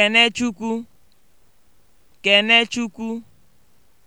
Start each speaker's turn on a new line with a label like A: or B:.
A: Kenechukwu Kenechukwu